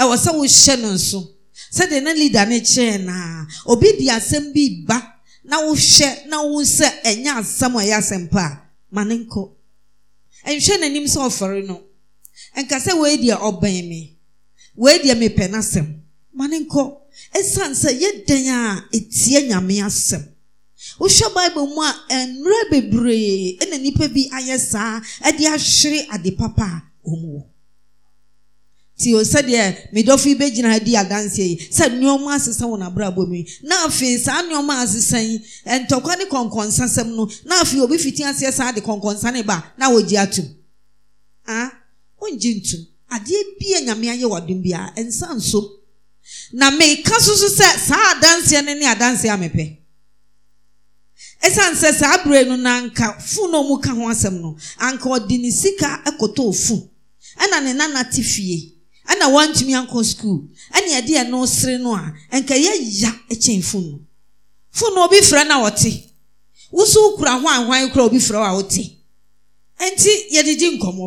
ɛwɔ sɛ wohyɛ no nso sɛdeɛ na leader no kyerɛɛ naa obi de asɛm bi ba na wohwɛ na wo sɛ ɛnyɛ asɛm a ɛyɛ asɛm pa ma ne nkɔ nhwɛ n'anim sɛ ɔfɔre no nka sɛ wei deɛ ɔbɛn me wei deɛ mepɛ n'asɛm ma ne nkɔ ɛsiane sɛ yɛdɛn a etie nyame asɛm wohwɛ bible mu a mmerɛ bebree na nnipa bi ayɛ saa de ahwere ade papa a wɔn wɔ ti o sɛdeɛ medɔfo yi bɛgyina ha di adanseɛ yi sɛ nneɛma asesa wɔn abrabɔ mu yi na afei saa nneɛma asesa yi ntɔkwa ne kɔnkɔnsa sɛm no na afei obi fiti aseɛ saa de kɔnkɔnsa ne ba na wɔgye atum ah wɔngye ntum adeɛ bia nyame ayɛ wɔdom bia nsa nso na meka so so sɛ saa adanseɛ no ne adanseɛ amepɛ ɛsiane sɛ saa abere no na nka fun na ɔmu ka ho asɛm no anka ɔde ne sika ɛkɔtɔɔ fun ɛna ne nana te fie ɛna wantumi ankɔ sukuul ɛne ɛde ɛno sere no a ɛnka yɛya kyɛn fonu fonu obi frɛ na ɔte woso kura hwan hwan kora obi frɛ a wote ɛnti yɛdedi nkɔmmɔ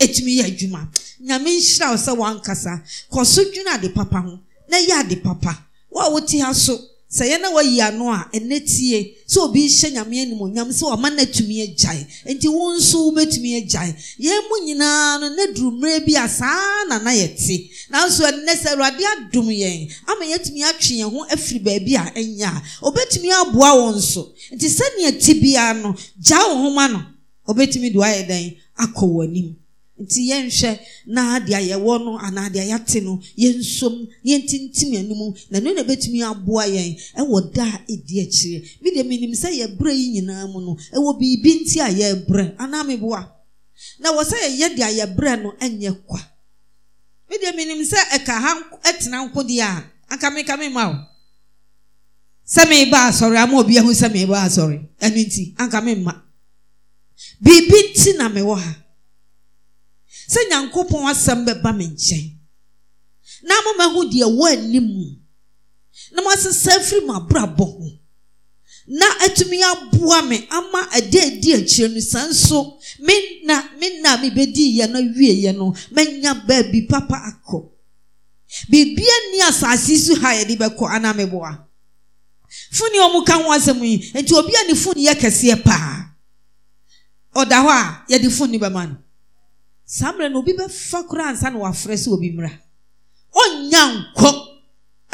ɛtumi yɛ adwuma nyame nhyira wo sɛ ankasa kɔ so ade papa ho na yɛ ade papa wo a wote ha so sɛ yɛn na wɔyi ano a ɛnɛ tie sɛ obi hyɛ nyame animonyam sɛ wɔma no atumi agyae nti wo nso wobɛtumi agyae yɛn mu nyinaa no ne duru mmerɛ bi a saa na na yɛte nanso ɛnɛ sɛ awurade adom yɛn ama yɛatumi atwe yɛn ho afiri baabi a ɛnyɛ a obɛtumi aboa wɔn so nti sɛnea ti biara no gyaa wo homa no obɛtumi de wayɛ dɛn akɔ wɔ anim nti yɛnhwɛ na deɛ wɔ no anaa deɛ ate no yɛ yɛnsom na yɛntintim anim na ɛno na ɛbɛtumi aboa yɛn ɛwɔ da a ɛdi akyire bi deɛ menim sɛ yɛbrɛ yi nyinaa mu no ɛwɔ biribi nti a yɛ yɛrebrɛ anaa meboa na wɔ sɛ yɛyɛ deɛ yɛbrɛ no ɛnyɛ kwa bi deɛ menim sɛ ɛka ha ɛtena nkodeɛ a anka meka me ma o sɛ meba asɔre ama obi ahu sɛ meba asɔre ɛno nti anka me mma biribi nti na mewɔ ha sɛ nyankopɔn asɛm bɛba me nkyɛn na ama mɛho deɛ wɔ anim mu na maase sa afiri ma abrɔbɔ ho na atumi aboa me ama ade adi akyirɛ no sa nso emenna mebɛdii yɛ no awieeɛ no mɛnya baabi papa akɔ biribia nni asase y so ha yɛde bɛkɔ ana meboa foni ɔ m ka ho asɛm yi enti obi ani foniyɛkɛseɛ paa ɔda hɔ a yde foni bɛman saa mmerɛ na obi bɛfa kora ansa na wafrɛ sɛ obi mmra ɔnya nkɔ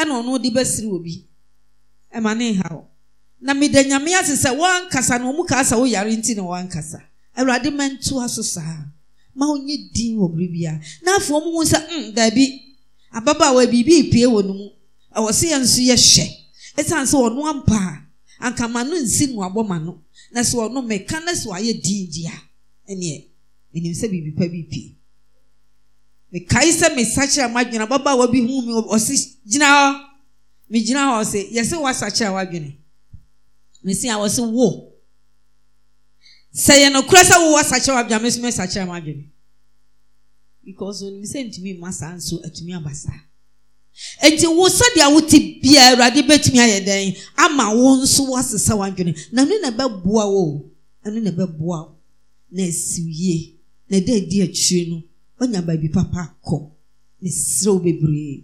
ɛna ɔno de bɛsiri obi ɛma ne ha o na meda nyame ase sɛ wɔankasa na ɔmu kaa sɛ woyare nti na wɔankasa awurade mɛnto aso saa ma ɔnyɛ din wɔ bere bia na afei ɔmu hu sɛ mm daabi ababaawa biribi epie wɔ no mu ɛwɔ sɛ yɛn nso yɛ hyɛ ɛsiane sɛ ɔno ampa a ankama no nsi no abɔ ma no na sɛ ɔno meka na sɛ wayɛ din di a ɛneɛ ɛnim sɛ biribi pa bi pii mekae sɛ mesakyera m'adwene ababa wa bi hu me ɔse gyina hɔ megyina hɔ ɔse yɛse woasakyera w'adwene mesi a wɔse wo sɛ yɛ nokorɛ sɛ wowɔ sakyera w'adwene me so mesakyera m'adwene because onim sɛ ntumi mma saa nso atumi aba saa nti wo sɛdeɛ wote bia awurade bɛtumi ayɛ dɛn ama wo nso woasesa w'adwene na ɛno na ɛbɛboa wo ɛno na ɛbɛboa wo na asiwie na ɛda adi akyire no ɔnya baabi papa akɔ meserew bebree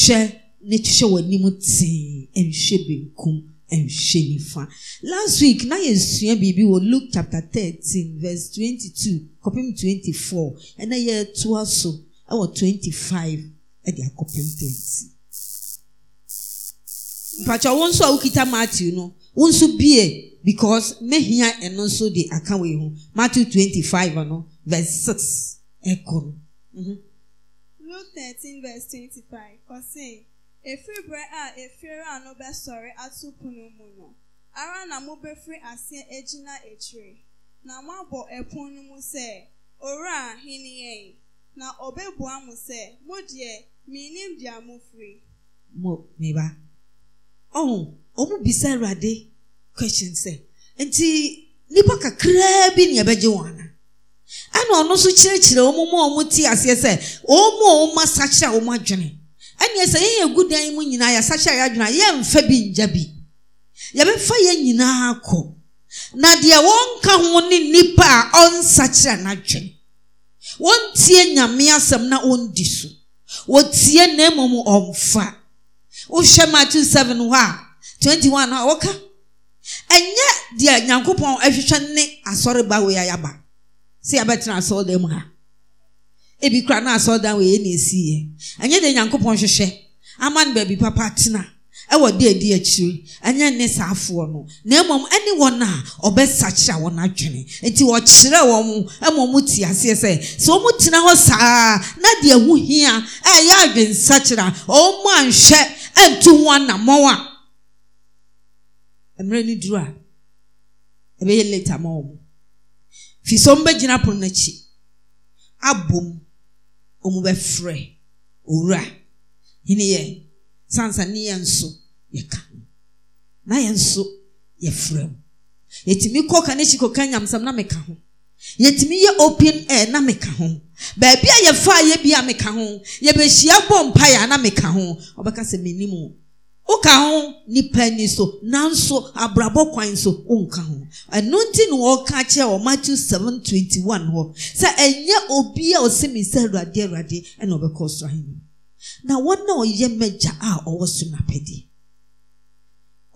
hwɛ ne hwɛ w'anim tee nhwɛ benkum nhwɛ nifa last week na yɛsua biribi wɔ luke chapter thirteen verse twenty-two kɔpem twenty-four ɛna yɛtoa so ɛwɔ twenty-five ɛde akɔpem thirty mpatwa wɔn nso a wokita matthew no wɔn nso bie because mehia ɛno nso de aka wei ho matthew twenty-five ano. Mm-hmm. verse 6 ekuru. kụrụ. Luke 13 verse 25 kọsị efiri a efiri anụ atụpụ n'ụmụ nọ ara na mụ asị egyina na mụ abọ epun n'ụmụ sị oru a hini na ọbẹbua mụ sị mụ deɛ mụ firi. mo nnipa kakraa bi na ɛna ɔno nso kyerɛkyerɛ a ɔmo te aseɛ sɛ ɔmo a ɔma sakyɛ a ɔmo adwene ɛneɛ sɛ yɛyɛ gu dan mu nyinaa yɛsakyɛ a adwene a yɛmfa bi ngya bi yɛbɛfa yɛn nyinaa kɔ na deɛ wɔnka ho ne nnipa a ɔnsakyerɛ n'adwene wɔntie nyame asɛm na ɔndi so wɔtie na mmom ɔmfa wohwɛ matthew 7 hɔ a 21 a wɔka ɛnyɛ deɛ nyankopɔn ahwehwɛ ne asɔreba wei ayaba sɛ yɛabɛtena asɔɔdan mu ha ebi na asɔɔdan wɔ yɛ na esiiɛ ɛnyɛ de nyankopɔn hwehwɛ ama no baabi papa tena ɛwɔ de adi akyire ɛnyɛ ne saafoɔ no na mmom ɛne wɔn a ɔbɛsakyera wɔn adwene nti wɔkyerɛ wɔn aseɛ sɛ sɛ wɔn tena hɔ saa na deɛ ho hia ɛyɛ wɔn anhwɛ ɛntu ho a mmerɛ duru a ɛbɛyɛ firi sɛ ɔmbɛgyina pono n'akyi abom ɔmu bɛfrɛ owura hene yɛ sansa ne yɛn nso yɛka na yɛn nso yɛfrɛ mu yɛtumi kɔ ka n'akyi kɔka nyamsam na meka ho yɛtumi yɛ open air na meka ho baabi a yɛfa yɛ bi a meka ho yɛbɛhyia bɔ mpaeɛ a na meka ho ɔbɛka sɛ menim o woka ho nnipa ni so nanso abrabɔ kwan so wonka ho ɛno nti ne wɔka kyerɛ wɔ matthew 721 hɔ sɛ ɛnyɛ obi a ɔsɛmi sɛ awurade awurade ɛna ɔbɛkɔ ahenni na wɔn a ɔyɛ mɛgya a ɔwɔ so n'apɛdeɛ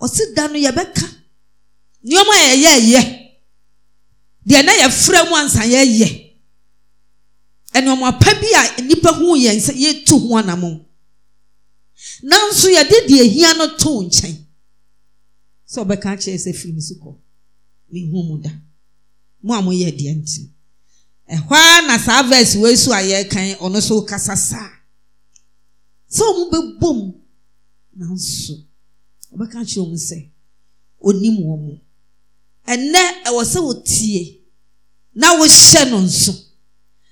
ɔsi da no yɛbɛka nneɛma a yɛyɛ ɛyɛ deɛ na yɛfrɛ mu ansa a nnipa yɛn sɛ yɛtu nanso yɛde deɛ ahia no too nkyɛn sɛ ɔbɛka kyerɛ sɛ firi me so kɔ mehu mu da mu a moyɛ deɛ nti ɛhɔ ara na saa verse wei so a yɛrekan ɔno so kasa saa sɛ ɔmo bɛbɔ bom nanso ɔbɛka kyerɛ ɔmo sɛ onim wɔ mo ɛnɛ ɛwɔ sɛ wotie na wohyɛ no nso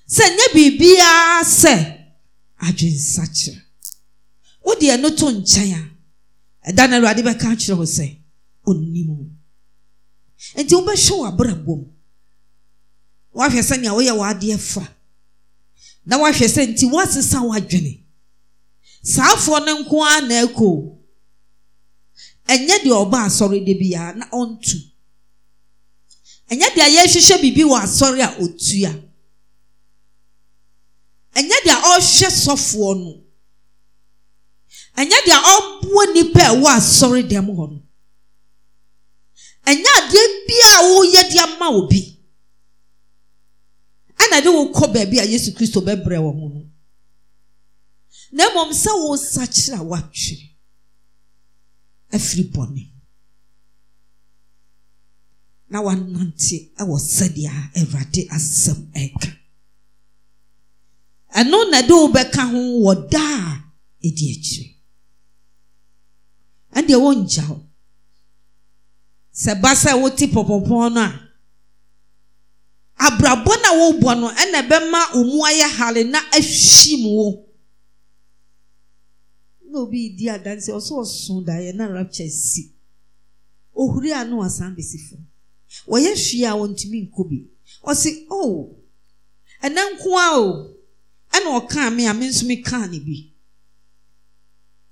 sɛ nye biribiara sɛ adwensakyerɛ wodi ɛno to nkyɛn a ɛda no awurade bɛka akyerɛ wo sɛ ɔnnim nti wobɛhwɛ w'abrabɔ mu woahwɛ sɛnea woyɛ w'adeɛ fa na woahwɛ sɛ nti woasesa w'adwene saafoɔ no nko ara na ɛkɔ ɛnyɛ deɛ ɔba asɔre de biara na ɔntu ɛnyɛ deɛ yɛhwehwɛ biribi wɔ asɔre a otua ɛnyɛ deɛ ɔhwɛ sɔfoɔ no ɛnyɛ deɛ ɔboa nipa ɛwɔ asɔre dɛm hɔ no ɛnyɛ adeɛ bia a wɔreyɛ de ama obi ɛna de wɔkɔ baabi a yesu kristo bɛbrɛ wɔn no na mmom sɛ wɔresakyere a wɔatwere afiri bɔne na wɔanante ɛwɔ sɛdeɛ a awurade asɛm ɛka ɛno na de wɔbɛka ho wɔ daa a ɛdi akyire ɛdeɛ wɔngya hɔ sɛ ba sɛ pɔpɔpɔn no a abrabɔ na a no ɛna ɛbɛma wo ayɛ na na obi di adansi ɔsɛ ɔso daeɛ na rapture si ohuri na bɛsi fam wɔyɛ a wɔntumi ɔsi oh a o ɛna a nso me kaa ne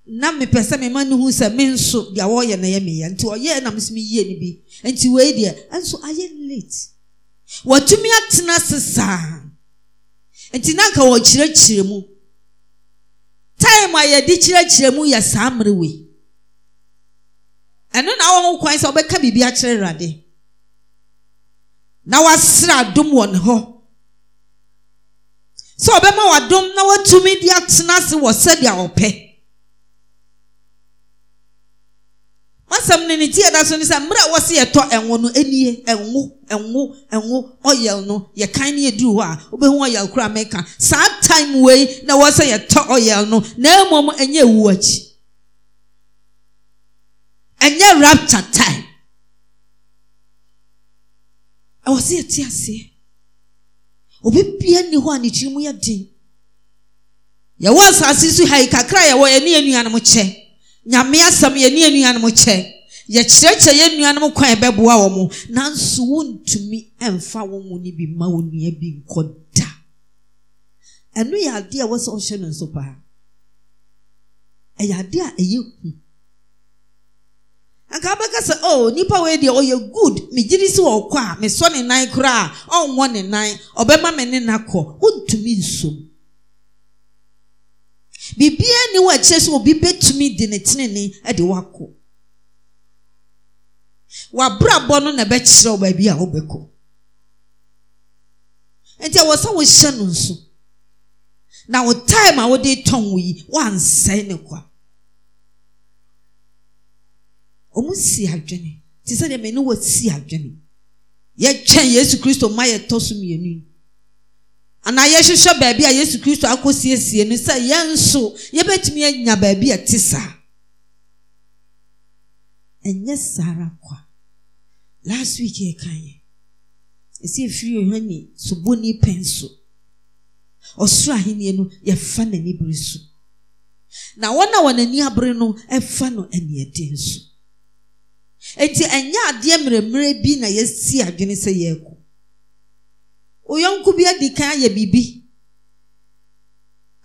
mepɛ sɛ me ma no hu sɛ me nso deɛ wɔyɛ nayɛ meyaa nti ɔyɛ nam nsomye no bi nti wei deɛ ɛnso ayɛ late watumi atena ase saa nti naanka wɔ kyerɛkyerɛ mu tim ayɛde kyerɛkyerɛmu yɛ saa mmerewei ɛno na a wɔwo kwan sɛ wɔbɛka biribi akyerɛ erade na wasere adom wɔ ne hɔ sɛ ɔbɛma w'adom na woatumi de atena se wɔ sɛdeɛ aɔpɛ masɛm no ne tie da so ne sɛ mmerɛ a wɔse yɛtɔ ɛnwo no ɛnie ɛnwo ɛnwo ɛnwo ɔyɛl no hɔ a wobɛhu ɔyɛl koraa mɛka saa time wei na wɔ sɛ yɛtɔ ɔyɛl no na mmom ɛnyɛ ɛwu akyi ɛnyɛ time ɛwɔ sɛ yɛte aseɛ obi bia nni a ne tiri mu yɛ den yɛwɔ asase so ha yi kakra yɛwɔ yɛne kyɛ nyame asɛm yɛne anuanom kyɛ yɛkyerɛkyerɛ yɛ nnuanom kwan ɛbɛboa wɔ mo nanso wontumi mfa wo mu ni bi ma bi nkɔ da ɛno yɛ adeɛ a ɛwɔ ɔhyɛ no paa ɛyɛ adeɛ a ɛyɛ hu anka sɛ o oh, nipa wei deɛ ɔyɛ good megyere si wɔ ɔkɔ a mesɔ ne nan koraa ɔnwɔ ne nan ɔbɛma me ne kɔ nsom biribiara ni wɔ akyire sɛ obi bɛtumi de ne tenene e de wakɔ wabrabɔ no na ɛbɛkyerɛ wo baabi a wobɛkɔ nti ɛwɔ sɛ wohyɛ no nso na wo time a wode tɔn wo yi woansɛe ne kwa ɔmo si adwene te sɛ deɛ mene wɔsi adwene yɛtwɛn yesu kristo ma yɛtɔ so mmienu yi anaa yɛhywehwɛ baabi a yesu kristo akɔsiesie no sɛ yɛnso yɛbɛtumi yɛanya baabi a ɛte saa ɛnyɛ saa ara nkɔ a last wik ɛka yɛ ɛsifihɔ ni sobɔni pɛn so ɔsoro ahenni no yɛfa n'aniberɛ so na wɔna wɔ n'ani abere no fa no aniden nso enti ɛnyɛ adeɛ mmerɛmmerɛ bi na yɛasie adwene sɛ yɛreko oyɔnko bi adi kan ayɛ biribi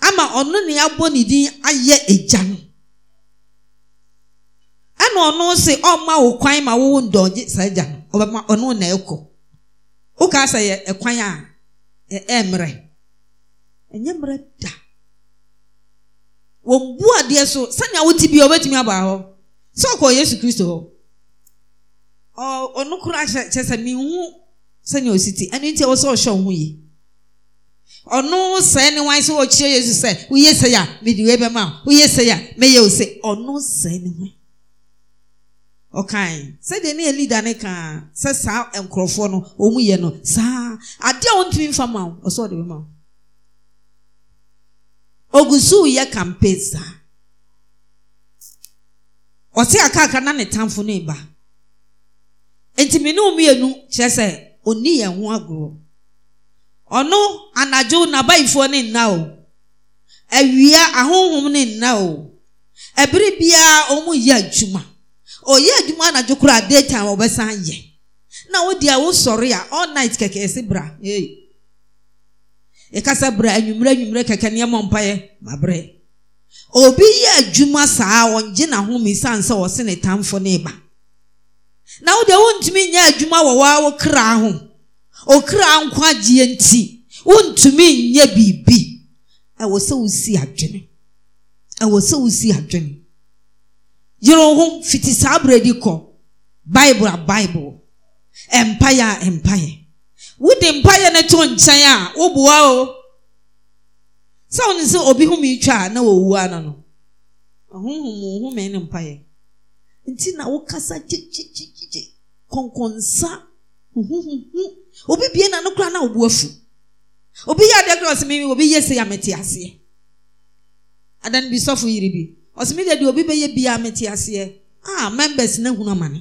ama ɔno ne abɔ ne din ayɛ agya no ɛna ɔno se ɔma wo kwan ma wowo ndɔgye saa agya no ɔbɛma ɔno na ɛkɔ wokaa sɛ yɛ ɛkwan a ɛmmerɛ ɛnyɛ mmerɛ da wɔn bu adeɛ so sani awo ti bi a ɔbɛtumi aba hɔ sɛ ɔkɔ yesu kristo hɔ ɔno koraa kyerɛ sɛ mihu wɔsɛ ɔhyɛ wo oyi ɔno sɛe ne wan sɛ ɔkyeɛ yɛsu sɛ woysɛei a medei bɛma wysɛe a mɛyɛ o sɛ ɔno sɛe ne wn ɔkae sɛdeɛ ne ɛliada ne kaa sɛ saa nɔfoɔ nɔm no saa ade otii famwoɔsɛɔdmuswyɛ kapa saaenaneɛɛ ɔnni yɛn ho agorɔ ɔno anadwo n'abayifoɔ ne nna o awia ahohom ne nna o ɛbere biara ɔmo yɛ adwuma ɔyɛ adwuma anadwo koraa day ɔbɛsan yɛ na wodi a a all night kɛkɛ ɛsi bra ee ɛkasa bra kɛkɛ nneɛma mpaeɛ obi yɛ adwuma saa ɔngye ne tamfo ne ba na wode wontumi nyɛ adwuma wɔ waa wo kra ho ɔkra nkwagyeɛ nti wontumi nyɛ biribi ɛwɔ sɛ wosi adwene ɛwɔ sɛ wosi adwene yere ho fiti saa berɛdi kɔ bible a bible mpaeɛ a mpaeɛ wode mpaeɛ no to nkyɛn a woboa o sɛ wone sɛ obi home twa a na wɔwua no no ɔhonhom wo home ne mpaeɛ nti na wokasa gyegyegyegye kɔnkɔnsa huhuhuhu obi bie na no kora na obu afu obi yɛ adeɛ kora ɔsɛ mi obi yɛ se amete aseɛ adan bi sɔfo yiri bi ɔsɛ deɛ deɛ obi bɛyɛ bi amete aseɛ a members na ehunu amane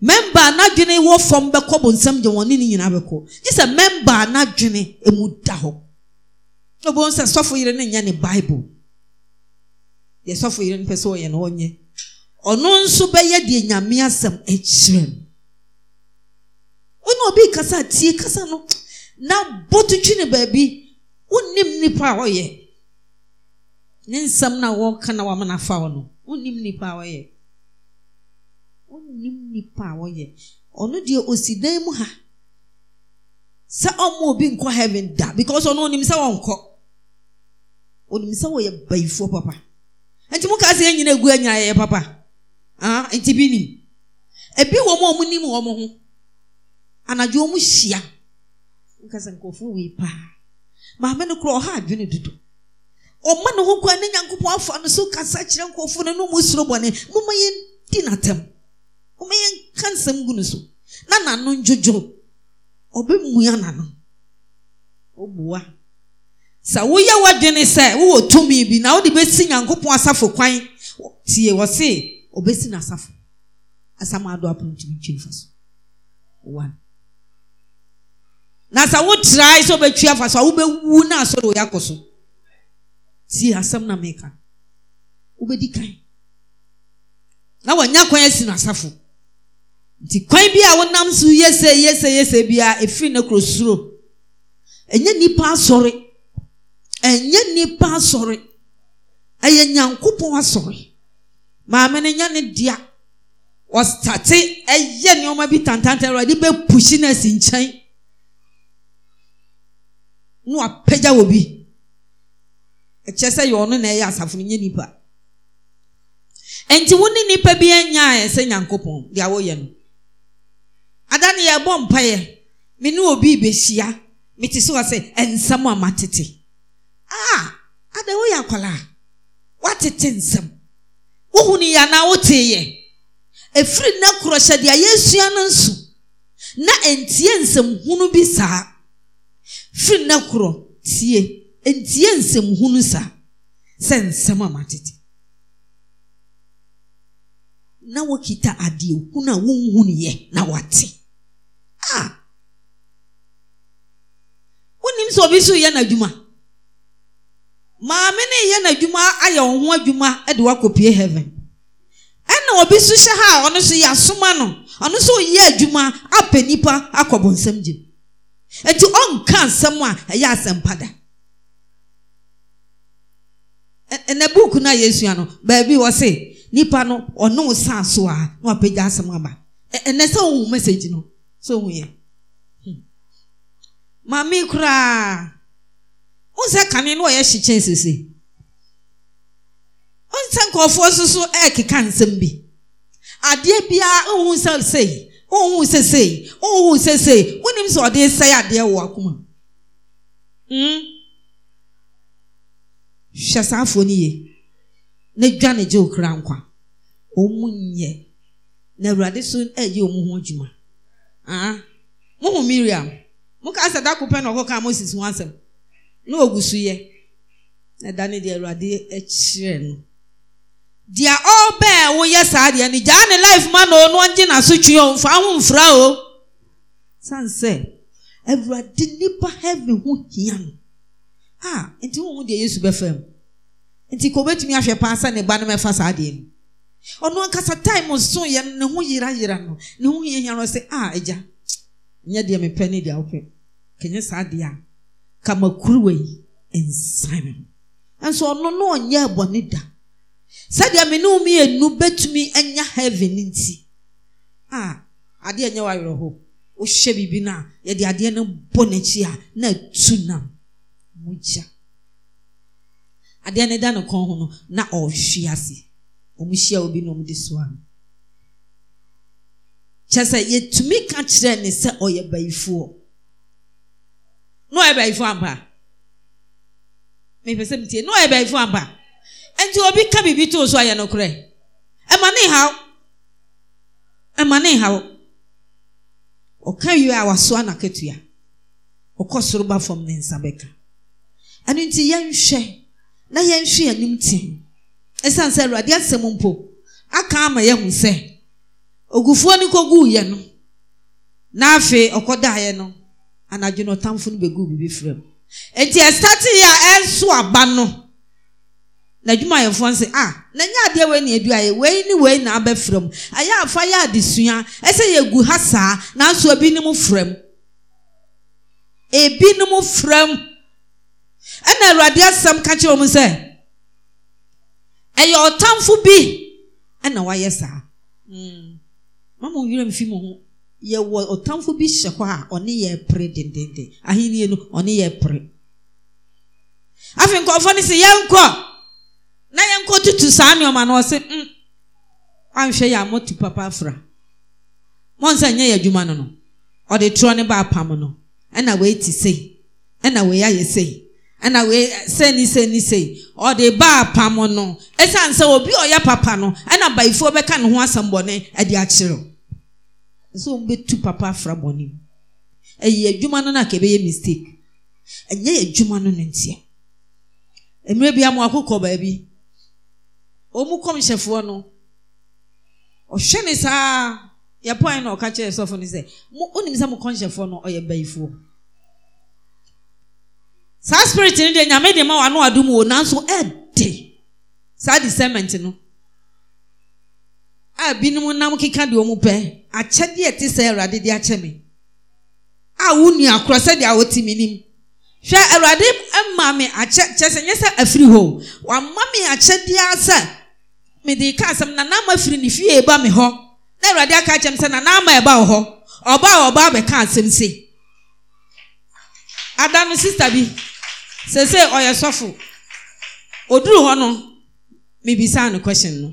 member anadwene wɔ fam bɛkɔ bɔ nsɛm gye wɔn ne ne nyinaa bɛkɔ gye sɛ member anadwene emu da hɔ obi wɔn sɛ sɔfo yiri ne nyɛ ne bible deɛ sɔfo yiri no pɛ sɛ ɔyɛ no ɔnyɛ. ɔno nso bɛyɛ deɛ nyame asɛm akyerɛ no wone ɔbɛi kasa tie kasa no na bɔtotwi ne baabi wonnim nnipa a ɔyɛ ne nsɛm no wɔka na wamanafa wo no wonnim nnipa a ɔyɛ wonnim nnipa a ɔyɛ ɔno deɛ ɔsi dan mu ha sɛ ɔma obi nkɔ heaven da because ɔno onim sɛ wɔnkɔ onim sɛ wɔyɛ bayifoɔ papa nti mo kaa sɛ yɛn nyina agu anyaayɛ papa Ah, nti bi nim ebi wɔ mu a wɔn nim wɔn ho anadwo wɔn hyia nkasa nkurɔfoɔ wei paa maame no koraa ɔha adwene dodo ɔma ne ho kwan ne nyankopɔn afa no so kasa kyerɛ nkurɔfoɔ no ne mu soro bɔne moma yɛn di n'atam moma yɛn ka nsɛm gu ne so na n'ano ndwodwo ɔbɛmua n'ano ɔbua sɛ woyɛ w'adwene sɛ wowɔ tumi bi na wode bɛsi nyankopɔn asafo kwan tie wɔ se ɔbɛsi n'asafo asam ado apono ntumi ntwi nifa so one na sɛ wotrae sɛ wobɛtwi afa so a wobɛwu na asɔre oyɛ akɔ so tie asɛm na meka wobɛdi kan na nya kwan si n'asafo nti kwan bi a wonam so yɛsɛ yese yese bi a ɛfiri ne kuro suro n'ipa nnipa asɔre n'ipa nnipa asɔre ɛyɛ nyankopɔn asɔre maame no nya ne dea ɔstate ɛyɛ nneɛma bi tantantan awurade bɛpusi no asi nkyɛn na wapagya wɔ bi ɛkyɛ sɛ yɛ ɔno na ɛyɛ asafo no nyɛ nipa nti wo ne nipa bi anyaa sɛ nyankopɔn deɛ woyɛ no ada ne yɛbɔ mpaeɛ me ne obi bɛhyia mete sɛ sɛ nsɛm a matete ah ada woyɛ akwalaa woatete nsɛm wohunuyɛ anaa woteeyɛ ɛfiri nnɛ korɔ hyɛde a yɛsua no nso na ntiɛ nsɛmhunu bi saa firi nnɛ korɔ tie ntie nsɛmhunu saa sɛ nsɛm amatete na wokita adeɛ hunu a wonhu nueɛ na wɔte ah! wonim sɛ obi so wyɛ n'adwuma maame ne yɛ n'adwuma ayɛ wɔn ho adwuma de wakɔpie heaven ɛna obi nso hyɛ ha a ɔno so yɛasoma no ɔno so ɔyɛ adwuma apɛ nipa akɔ bɔnsɛm gye nti ɔnka nsɛm a ɛyɛ asɛmpa da ɛnɛ buuku no a yɛsua no baabi wɔ se nnipa no ɔne wo saa so a na wapagya asɛm aba ɛnɛ sɛ wohu message no sɛ wohu yɛ hmm. maame koraa nsɛ kane no ɔyɛ hyekyɛ sese nsɛ nkurɔfoɔ nso so ɛrekeka nsɛm bi adeɛ biara nhu sɛ sei nhu sɛ sei nhu sɛ sei wonim sɛ ɔde sɛe adeɛ wɔ akoma mm hwɛ saa afoɔ ne yie na dwa ne gye okura nkwa wɔn mu nyɛ na awurade so ɛyɛ wɔn ho adwuma ah mo hu miriam mo ka sɛ dako na ɔkɔ ka moses ho asɛm na ogu so yɛ na ɛdane deɛ awurade akyerɛ no deɛ ɔbɛɛ woyɛ saa deɛ no gyaa ne life ma na ɔno ɔngye n'asotwe ɔmfa ho mfra o san sɛ awurade nipa heaven ho hia no a nti wɔn deɛ yesu bɛfa mu nti kò bɛtumi ahwɛ paa sɛ ne ba no mɛfa saa deɛ no ɔno ankasa time so yɛ no ne ho yira yira no ne ho hia hia no sɛ a agya nyɛ deɛ mepɛ ne deɛ wopɛ kɛnyɛ saa deɛ a kamakuruwa yi nsan nso ɔno no ɔnyɛ ɛbɔne da sɛdeɛ me ne wo mmienu bɛtumi anya heaven nti a adeɛ nyɛ w'awerɛho wohyɛ biribi no a yɛde adeɛ no bɔ n'akyi a na atu nam mogya adeɛ no da ne kɔn ho no na ɔrehwe ase ɔmo hyia obi na ɔmo de so ano kyɛ sɛ yɛtumi ka kyerɛ ne sɛ ɔyɛ bayifoɔ na ɔyɛ baayifo ampa mepɛ sɛ metie na ɔyɛ baayifo ampa nti obi ka biribi too so ayɛ nokorɛ ɛma ne haw ɛma ne haw ɔka wie a wasoa n'akatua ɔkɔ soro ba fam ne nsa bɛka ɛno nti yɛnhwɛ na yɛnhwɛ anim ten ɛsiane sɛ awurade asɛm mpo aka ama ya sɛ ogufuo ne kɔguu yɛ no na afei ɔkɔdaeɛ no anadwo na ɔtamfo no bɛgu biribi frɛ mu nti ɛsate yi a ɛnso aba no n'adwumayɛfoɔ nse a n'anya adeɛ wei na edu ayɛ wei ne wei na abɛfra mu ayɛ afa yɛ adesua ɛsɛ yɛgu ha saa nanso ebinom fra mu ebinom fra mu ɛna awurade asɛm ka kyerɛ wɔn sɛ ɛyɛ ɔtamfo bi ɛna wayɛ saa mama wɔn werɛ mfi mo ho yɛwɔ ɔtamfo bi hyɛ hɔ a ɔne yɛ pere dendenden ahenni no ɔne yɛ pere afei nkɔɔfoɔ no sɛ yɛnkɔ na yɛnkɔ tutu saa nneɛma no ɔse mm anhwɛ yɛ a mɔtu papa afra mɔnsa nyɛ yɛ adwuma no no ɔde torɔ ne ba apam no ɛna wei ti sei ɛna wei ayɛ sei ɛna wei sɛni sɛni sei ɔde ba apam no ɛsiane sɛ obi ɔyɛ papa no ɛna baifoɔ bɛka ne ho asɛmbɔne ɛde akyerɛw sɛ wɔn bɛtu papa afra bɔne mu ɛyɛ adwuma no na ka ɛbɛyɛ mistake ɛnyɛ adwuma no no nteɛ mmerɛ bi amu akokɔ baabi wɔn kɔmhyɛfoɔ no ɔhwɛ ne saa yɛ pɔn na ɔka kyerɛ sɔfo no sɛ mo onim sɛ mo kɔmhyɛfoɔ no ɔyɛ bayifoɔ saa spirit no deɛ nyame de ma wɔn ano adum wɔ nanso ɛɛde saa discernment no a binom nam keka deɛ ɔmo pɛ akyɛdeɛ ɛte sɛ awurade de akyɛ me a wo nua korɔ sɛdeɛ a wɔte me nim hwɛ awurade ma me akyɛ kyɛ sɛ nyɛ sɛ afiri hɔ wama me akyɛdeɛ sɛ mede ka asɛm nana ama firi ne fie ba e me hɔ na awurade aka akyɛm sɛ nana ama ɛba wɔ hɔ ɔbaa a ɔbaa bɛka asɛm se ada no sista bi sɛ sɛ ɔyɛ sɔfo oduru hɔ no mebisa no question no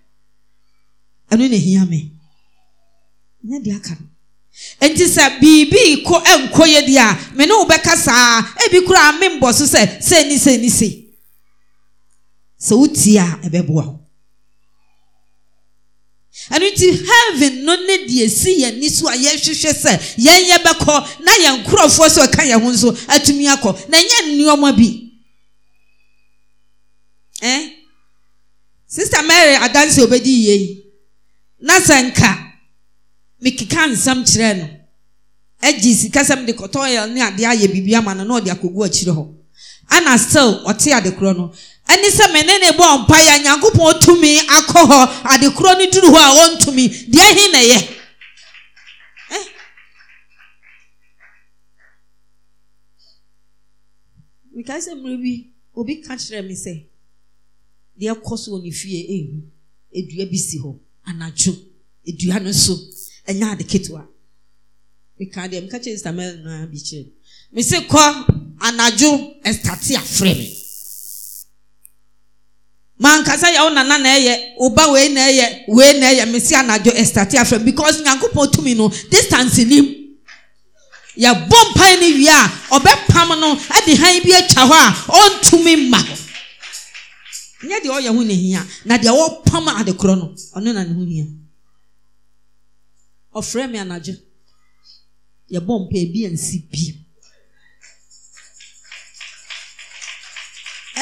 ɛno na ehia me nyɛ deɛ aka no nti sɛ biribi kɔ nkɔ yɛ deɛ a me ne wo bɛka saa ebi kura me mbɔ so sɛ sɛ ni sɛ ni sɛ sɛ wotie a ɛbɛboa wo ɛno nti heaven no ne deɛ si yɛn ni so a yɛhwehwɛ sɛ yɛn yɛ bɛkɔ na yɛn nkurɔfoɔ so ɛka yɛn ho nso atumi akɔ na nyɛ nneɛma bi ɛn sista mary adansi obedi yie yi. na sɛ nka mekeka nsɛm kyerɛɛ no agye sika sɛm de kɔtɔɔyɛ ne adeɛ ayɛ biribi ama no na ɔde akɔgu akyire hɔ ana still ɔte adekorɔ no ɛne sɛ mene ne bɔ ɔmpa yɛ nyankopɔn tumi akɔ hɔ adekorɔ no duru hɔ a ɔntumi deɛ he na ɛyɛ eh? mekae sɛ mmerɛ bi obi ka kyerɛ me sɛ deɛ kɔ so wɔ ne fie ɛhu dua bi si hɔ anadwo edua no so ɛnyɛ ade ketewa meka deɛ meka kyerɛ sista mɛl no ara bi kyerɛ me se kɔ anadwo ɛstate afrɛ me mankasa yɛ wo nana na ɛyɛ oba wei na ɛyɛ wei na ɛyɛ me se anadwo ɛstate afrɛ me because nyankopɔn tumi no distance nim yɛbɔ mpae no wie a ɔbɛpam no de han bi atwa hɔ a ɔntumi mma hɔ nyɛ deɛ ɔyɛ ho nehia na deɛ wɔpam adekorɔ no ɔno na ne ho hia ɔfrɛ me anadwo yɛbɔ mpa ebi ansi bi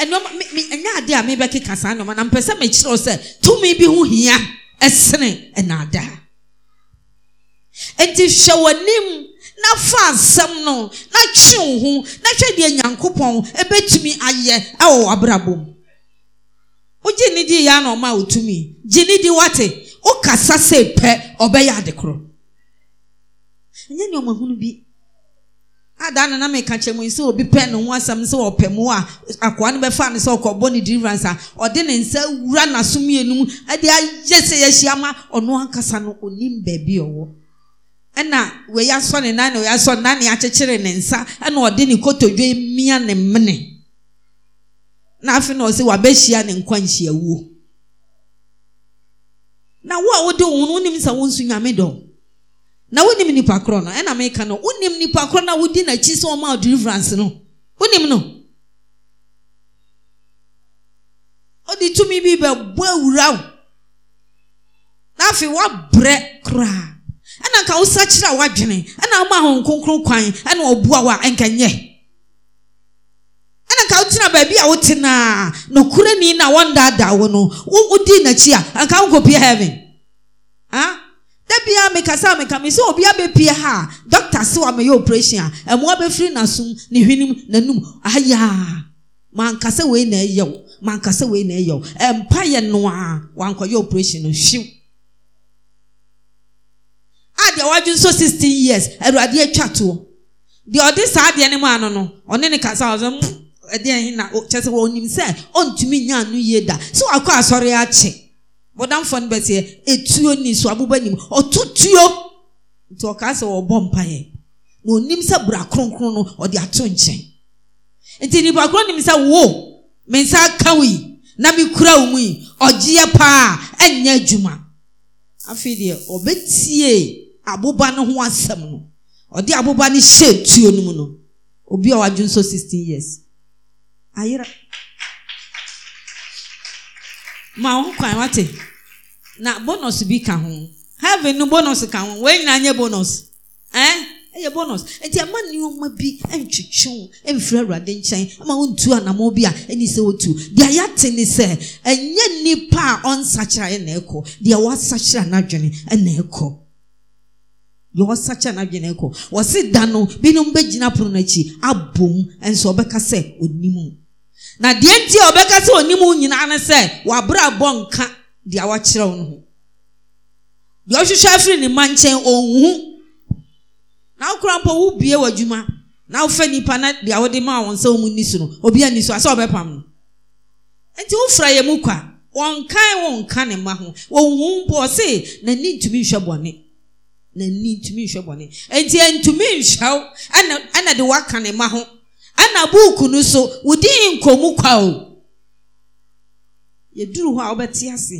ɛnɔma mi mi ɛnyɛ adeɛ a keka saa nɔma na mpɛ sɛ tụmụ sɛ tumi bi ho hia ɛsene ɛnaadaa nti hwɛ w'anim na fa asɛm no na twe wo ho na hwɛ deɛ nyankopɔn ɛbɛtumi ayɛ ɛwɔ w'abrabɔ mu wogye ne dii yɛ ana otu wotumi gye ne di wati wate wokasa sɛ pɛ ɔbɛyɛ ade korɔ ɛnyɛ nneɛma hunu bi adaa nana meka kyerɛ mu sɛ obi pɛ ne ho asɛm sɛ ɔpɛ mu a akoa no bɛfa ne sɛ ɔkɔbɔ ne deliverance a ɔde ne nsa wura n'aso mmienu mu ɛde e ayɛ sɛ yɛahyia ma ɔno ankasa no onim baabi ɔwɔ ɛna e wɔyɛ asɔ ne nan na wɔyɛ asɔ ne nan na yɛakyekyere ne nsa ɛna e ɔde ne kotodwe mia na mmene. na na ɔsɛ wabɛhyia ne nkwanhyia wuo na wo a wode wo no wonim sɛ wo nso nyame dɔ na wonim nipa korɔ no ɛna na no wonim nipa korɔ no a wodi n'akyi sɛ ɔma deliverance no wonim no ɔde tumi bi bɛbɔ awura na afei woabrɛ koraa ɛna nka wosakyerɛ a woadwene ɛna woma ahonkronkron kwan ɛna ɛna nka wotena baabi a wotena nokura ni na wɔndaadaa wo no wodi n'akyi a anka wonkɔpie heaven ah da bia mekasa a meka me sɛ obi abɛpie ha a dɔkta se wa meyɛ operation a ɛmoa bɛfiri n'asom ne hwenem n'anum ayaa mankasa wei na ɛyɛ wo mankasa wei na ɛyɛ wo ɛmpa yɛ no a wankɔyɛ operation no hwiw a deɛ wadwe nso sixteen years awurade atwa toɔ deɛ ɔde saa adeɛ no mu ano no ɔne ne kasa ɔsɛ mu. Hmm ɛdeɛ yi na kyɛ sɛ wɔnim sɛ ɔntumi nya anu yie da sɛ wakɔ asɔre akye wɔdamfoɔ no bɛsɛ etuo ni so aboba nim ɔto tuo nti ɔkaa sɛ wɔbɔ mpaeɛ na onim sɛ bra kronkron no ɔde ato nkyɛn nti nipa koro nim sɛ wo me nsa aka wo yi na me kura wo mu yi ɔgyeɛ paa ɛnyɛ adwuma afei deɛ ɔbɛtie aboba no ho asɛm no ɔde aboba no hyɛ tuo no mu no obi a wadwo nso sixteen years anyị ma nkwa nwata na bonus bi ka ho heaven no bonus ka ho wee nyina nye bonus ɛn eh? ɛyɛ bonus nti ama nneɛma bi ntwitwi ho mfiri awurade nkyɛn ama wɔntu anamɔ bi a ɛni sɛ wɔtu deɛ yɛate ne sɛ ɛnyɛ nipa a ɔnsakyera ɛna ɛkɔ deɛ wasakyera n'adwene ɛna ɛkɔ deɛ wasakyera n'adwene ɛkɔ wɔsi da no binom bɛgyina pono n'akyi abom nso ɔbɛka sɛ onimu. na deɛ nti a ɔbɛka sɛ onim nyinaa ne sɛ wabra bɔ nka deɛ wakyerɛw no ho deɛ ɔhwehwɛ afiri ne ma nkyɛn ɔnhu na wokora mpo wobie w'adwuma na wofa nipa na deɛ wode ma wɔn sɛ wɔn ni so no obi ani so asɛ ɔbɛpam no nti wofra yɛ mu kwa wɔnkan wɔnka ne ma ho wɔnhu mpo ɔse n'ani ntumi nhwɛ bɔne n'ani ntumi nhwɛ bɔne nti ntumi nhwɛw ɛna ɛna de waka ne ma ho ɛna buuku no so wòdi nkɔmu kwa o yɛduru hɔ a wɔbɛte ase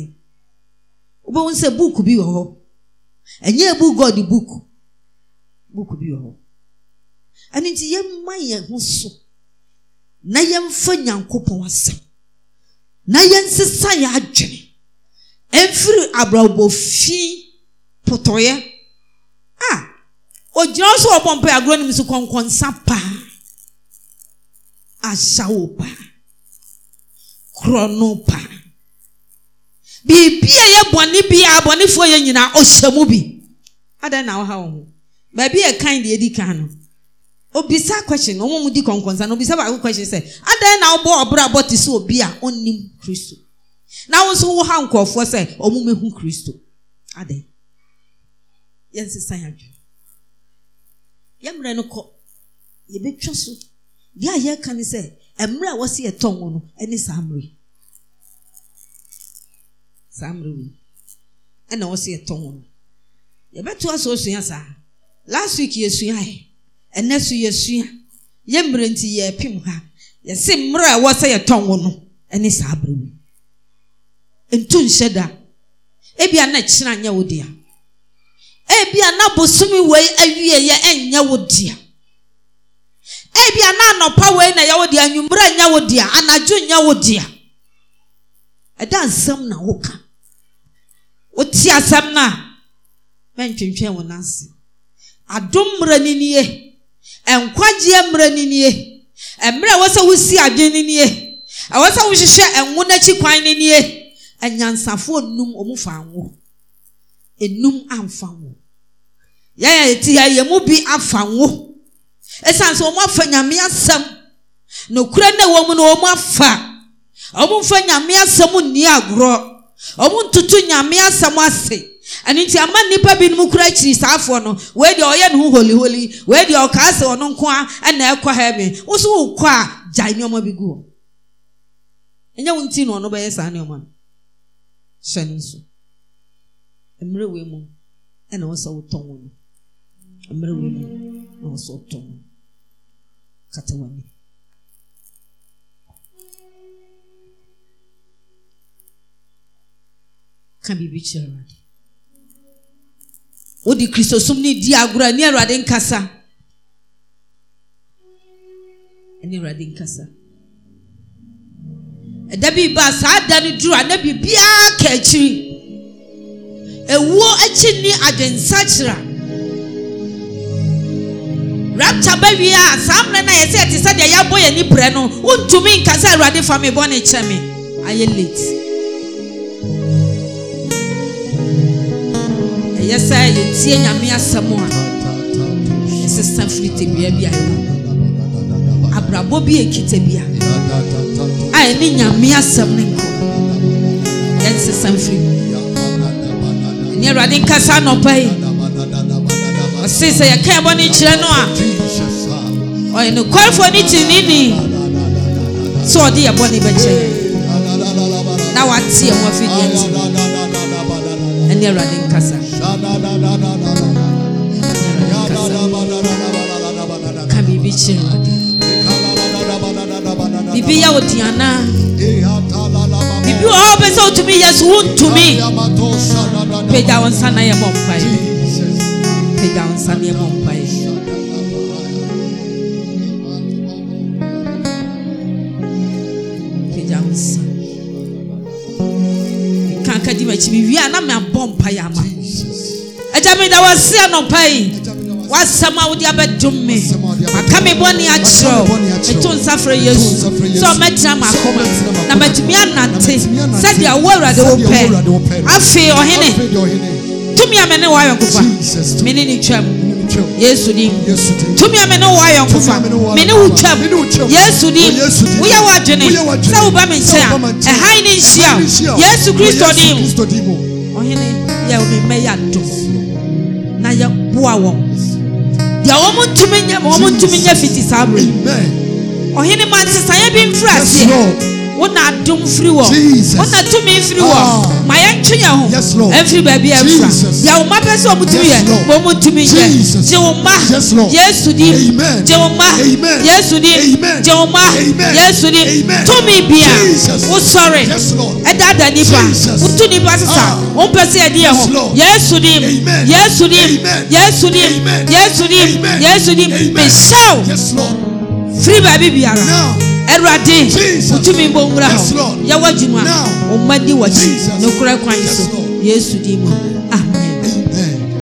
wobɛhu sɛ buuku bi wɔ hɔ ɛnyɛ ebu god buuku buuku bi wɔ hɔ ɛno nti yɛmma yɛn ho so na yɛmfa nyankopɔn asɛm na yɛnsesa yɛ adwene ɛmfiri abrabɔfi potɔeɛ a ogyina so wɔ bɔ agorɔ no mu so kɔnkɔnsa paa asawopa krɔnopa biribi a yɛ bɔne bi a abɔnefoɔ yɛ nyinaa ɔhyɛ mu bi adan na ɔha wɔn ho baabi yɛ kan deɛ edi kan no obisa question na wɔn mu di kɔnkɔnsa na obisa baako question sɛ adan na ɔbɔ ɔbɛrɛ abɔ te sɛ obi a ɔnnim kristo na wɔn nso wɔ ha nkɔɔfoɔ sɛ wɔn mehu kristo adan yɛn sisan yadwo yɛn mmerɛ no kɔ yɛbɛtwa so. deɛ a yɛreka ne sɛ mmerɛ a wɔsi ɛtɔn wɔn no ne saa mmerɛ saa ɛna wɔsi ɛtɔn wɔn yɛbɛto asɛ osua saa last week yɛsua yɛ ɛnɛ so yɛsua yɛ mmerɛ nti yɛrepem ha yɛsi mmerɛ a wɔsɛ yɛtɔn wɔn no ne saa mmerɛ ntu nhyɛ da ebi a na kyerɛ anyɛ wo dea ebi a na bosomi wei awie yɛ ɛnyɛ wo dea. ebi a na-anọpa wee na ya wo dea anwummerɛ nyɛ wo dea anadwo nyɛ wo dea ɛda nsɛm na woka wote asɛm no a mɛntwentwɛn wo nase adom mmerɛ no nie nkwagyeɛ mmerɛ mmiri nie mmerɛ ɛwɔ sɛ wosi adwe no nie kwan no nie anyansafoɔ nnum ɔmu fa nnum amfa ngo ya a eti ya yɛn bi afa ngo ɛsiane sɛ wɔm afa nyame asɛm na okwuru mu no wɔm afa ɔmomfa nyame asɛm nni agorɔ ɔmontoto nyame asɛm ase ɛno nti ama nnipa binom kora akyiri saafoɔ no wei deɛ ɔyɛ ne ho holiholi wei deɛ ɔkaa sɛ ɔno nko na ɛkɔ ha me wo wokɔ a bi gu hɔ ɛnyɛ na ɔno bɛyɛ saa no hyɛ na wotɔn a bibikrɛ rade wode khristosom no di agoraa ani awurade nkasanradenksa ɛda birbaa saa da no duru a nabiibiaa kaakyiri ɛwo akyir ni adwensakyera rapture bɛwie a saa mmerɛ no a yɛsɛ yɛte sɛ deɛ yɛabɔ yɛn ani brɛ no wontumi nka sɛ awurade fa me bɔ ne kyɛ me ayɛ late ɛyɛ sɛ yɛtie nyame asɛm a ɛsesa firi tebea bi a ɛwɔ abrabɔ bi ɛkita bi a a ɛne nyame asɛm ne nkɔ yɛnsesa mfiri ɛne awurade nkasa nɔpa yi ɔse sɛ yɛka ɛbɔ ne kyerɛ no a ɔyɛ nokwarefoɔ ne tirinini sɛ ɔde yɛbɔ ne bɛkyerɛ na wate yɛ ho nti ɛne awurade nkasa ka biribi kyerɛ biribi yɛ wo biribi wɔ hɔ wopɛ sɛ wotumi yɛ so wontumi pagya wo nsa na yɛ bɔ mpaeɛ apagya nsaneɛ mu mpae apagya nsa ka ka di m'akyi mewie a na meabɔ mpae ama agya meda wɔse anɔpa yi wasɛm a wode abɛdom me maka me bɔne akyerɛw meto nsa frɛ yesu sɛ ɔmɛtena m'akoma na matumi anante sɛdeɛ wo awurade hene. pɛ afei ɔhene tumi a mene wayɔ nkofa mene ne twam yesu di. tumi a mene wayɔ nkofa mene wo twam yesu di. woyɛ w'adwene sɛ woba me nkyɛn a ɛhan ne nhyia yesu kristo di mu ɔhene yɛ wo memmɛ yɛ adom na yɛboa wɔn deɛ wɔn ntumi nyɛ wɔn ntumi nyɛ fiti saa berɛ ɔhene ma nsesaeɛ bi mfiri aseɛ wọn na adum firi wọ wọn na tumi firi wọ ah. ma yẹn ntwi yẹn ho ẹnfiri baabi yẹn fura yà wọn ma pẹ sẹ wọn tumi yẹ wọn mu tumi yẹ jẹ wọn ma yẹsu di jẹ wọn ma yẹsu di jẹ wọn ma yẹsu di tumi bia wosɔre ɛdada nipa wotu nipa sisan ah. wọn pɛ sɛ yɛdi yɛn ho yɛsu di yɛsu di yɛsu di yɛsu di yɛsu di mesaw firi baabi biara. ɛwurade wotumi mbɔ nwura hɔ yɛwɔ adwuma ɔma di w'akyi so yesu din amen